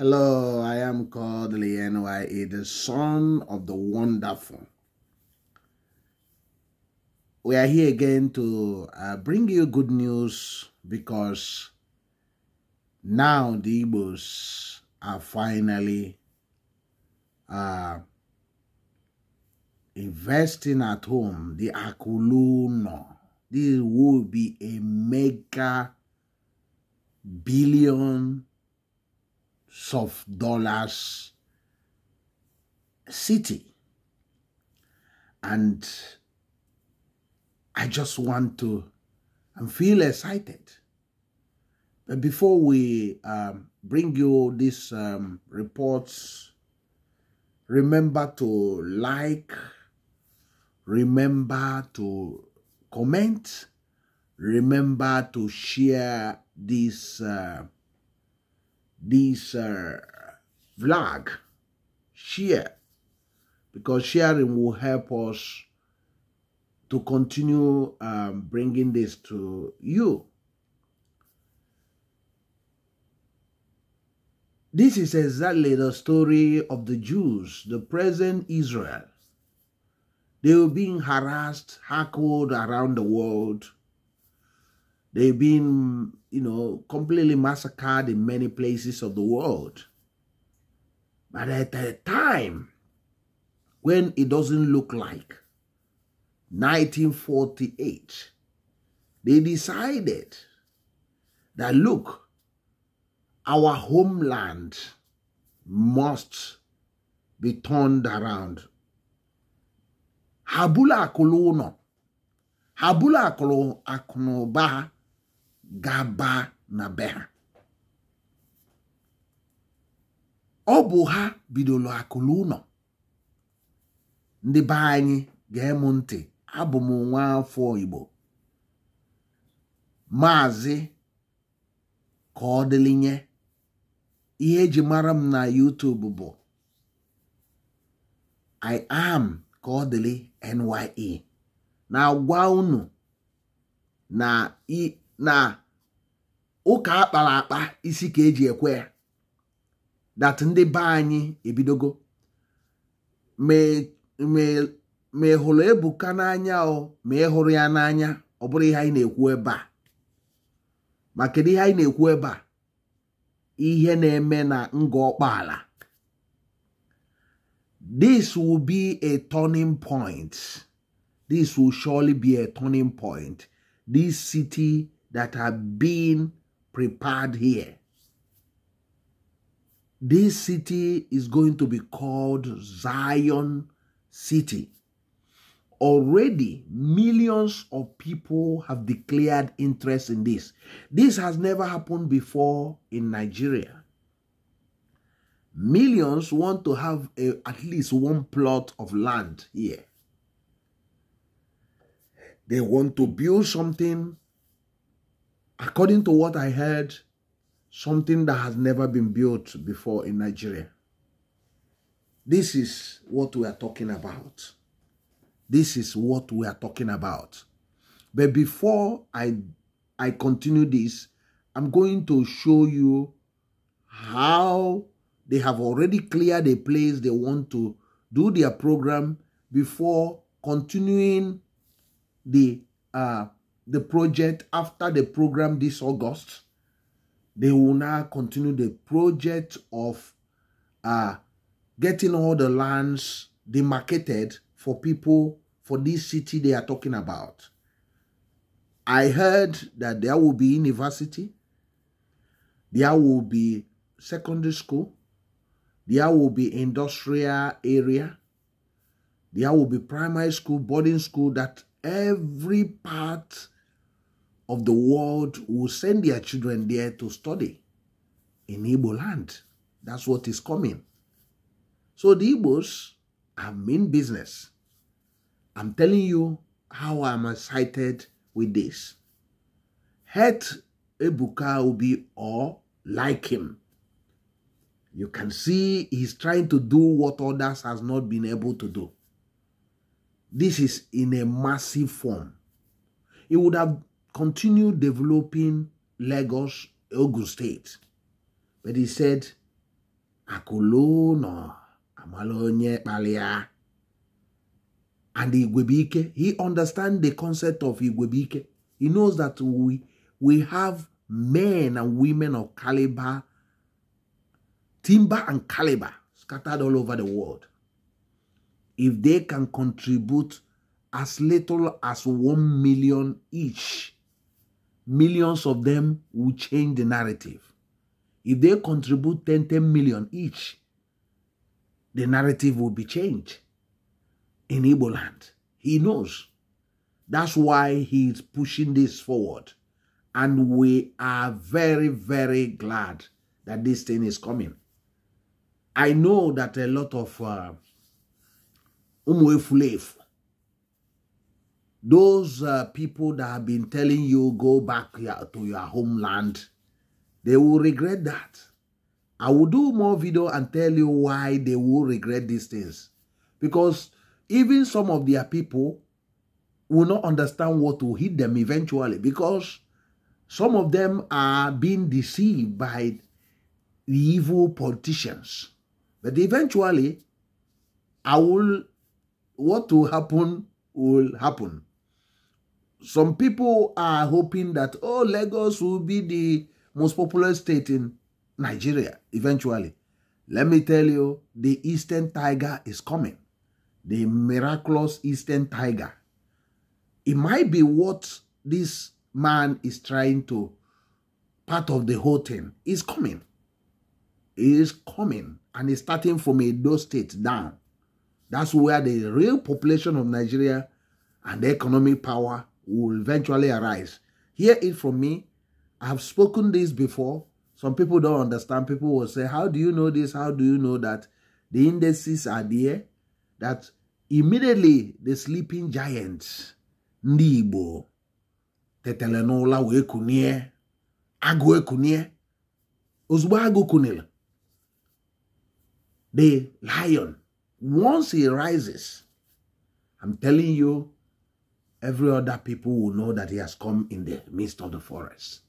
Hello, I am called Lienye, the son of the wonderful. We are here again to uh, bring you good news because now the Igbos are finally uh, investing at home. The Akuluno. This will be a mega billion of dollars city. And I just want to and feel excited. But before we um, bring you these um, reports, remember to like, remember to comment, remember to share this. Uh, this uh, vlog, share, because sharing will help us to continue um, bringing this to you. This is exactly the story of the Jews, the present Israel. They were being harassed, hackled around the world, They've been, you know, completely massacred in many places of the world. But at a time when it doesn't look like 1948, they decided that look, our homeland must be turned around. Habula akolo no. Habula akolo akonoba gaba na be ha ọ bụ ha bidoro akụlụ ụlọ ndị be anyị ga-emu ntị abụ m nwa afọ Igbo maazị ka ọ dịlinye ihe eji mara m na YouTube bụ I am ka ọ NYE na-agwa unu na na ụka akpara akpa isi ka eji ekwe ya dat ndị be anyị ebidogo ma ịhụrụ e, e, e Ebuka n'anya o ma ịhụrụ ya n'anya ọ bụrụ ihe anyị na-ekwu ebe ma kedu ihe anyị na-ekwu ebe ihe na-eme na nga ọkpaala this will be a turning point this will surely be a turning point this city that are being prepared here. This city is going to be called Zion City. Already, millions of people have declared interest in this. This has never happened before in Nigeria. Millions want to have a, at least one plot of land here. They want to build something according to what I heard, something that has never been built before in Nigeria. This is what we are talking about. This is what we are talking about. But before I, I continue this, I'm going to show you how they have already cleared a place they want to do their program before continuing the uh, the project after the program this August. They will now continue the project of uh, getting all the lands demarcated for people for this city they are talking about. I heard that there will be university, there will be secondary school, there will be industrial area, there will be primary school, boarding school, that every part of the world will send their children there to study in Igbo land. That's what is coming. So the Igbos are in business. I'm telling you how I'm excited with this. Hate Ebuka be or like him. You can see he's trying to do what others has not been able to do. This is in a massive form. He would have continue developing Lagos, Ogun State. But he said, Akolono Amalonye Palia. And Igwebike, he understands the concept of Igwebike. He knows that we, we have men and women of caliber, timber and caliber scattered all over the world. If they can contribute as little as one million each millions of them will change the narrative. If they contribute 10, 10 million each, the narrative will be changed in Igbo land. He knows. That's why he's pushing this forward. And we are very, very glad that this thing is coming. I know that a lot of uh, Umwefulef those uh, people that have been telling you go back to your homeland, they will regret that. I will do more video and tell you why they will regret these things. Because even some of their people will not understand what will hit them eventually because some of them are being deceived by the evil politicians. But eventually, I will, what will happen will happen. some people are hoping that oh lagos will be the most popular state in nigeria eventually let me tell you the eastern tiger is coming the miraculous eastern tiger it might be what this man is trying to part of the whole thing is coming It is coming and it's starting from a Edo State down. That's where the real population of Nigeria and the economic power will eventually arise. Hear it from me. I have spoken this before. Some people don't understand. People will say, How do you know this? How do you know that? The indices are there. That immediately the sleeping giants, Nibo, Tetelenola, tetele n'ụla wee the lion, once he rises, I'm telling you, every other people will know that he has come in the midst of the forest.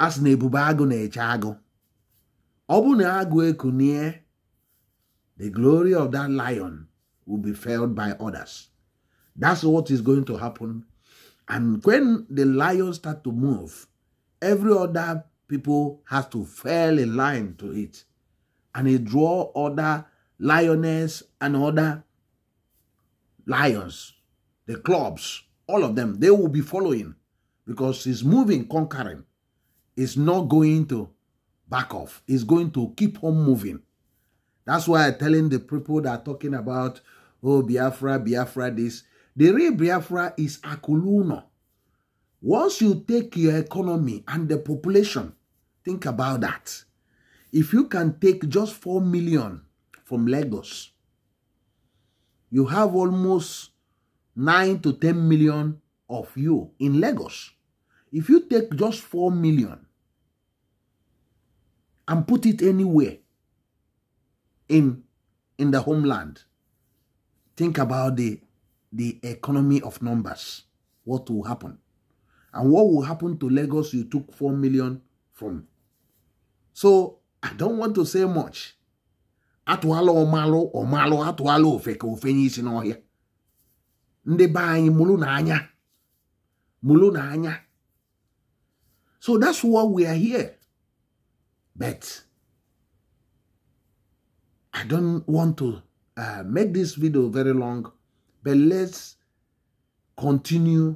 As sị na ebube ekunie the glory of that lion will be felt by others that's what is going to happen and when the lion start to move every other people has to fall in line to it and he draw other lioness and other lions, the clubs, all of them, they will be following because he's moving, conquering. He's not going to back off. He's going to keep on moving. That's why I'm telling the people that are talking about, oh, Biafra, Biafra, this. The real Biafra is Akuluno. Once you take your economy and the population, think about that. If you can take just 4 million from Lagos, you have almost 9 to 10 million of you in Lagos. If you take just 4 million and put it anywhere in, in the homeland, think about the, the economy of numbers. What will happen? And what will happen to Lagos you took 4 million from? So I don't want to say much. atụala ọmalụ ọmalụ atụala ofe ka ofe nye isi n'ọhịa ndị be anyị mụrụ na anya mụrụ na anya so that's why we are here but i don't want to uh, make this video very long but let's continue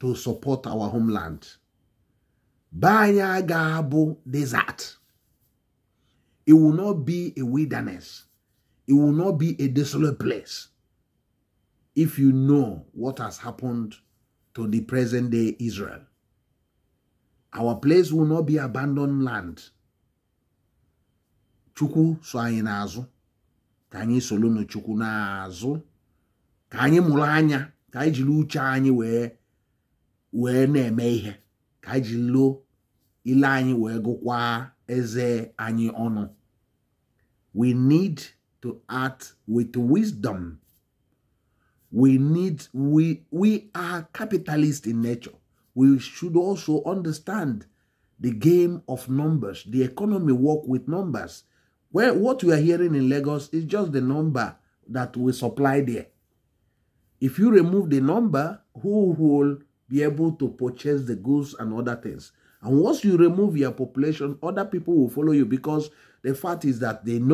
to support our homeland be anyị ga-abụ desert It will not be a wilderness. It will not be a desolate place. If you know what has happened to the present day Israel, our place will not be abandoned land. Chuku so anyị n'azụ ka chuku soro n'Chukwu n'azụ ka anyị mụrụ anya ka anyị jiri uche anyị wee wee na-eme anyị jiri loo eze anyị ono. We need to act with wisdom. We need, we, we are capitalist in nature. We should also understand the game of numbers. The economy work with numbers. Where what we are hearing in Lagos is just the number that we supply there. If you remove the number, who will be able to purchase the goods and other things? And once you remove your population, other people will follow you because the fact is that they know.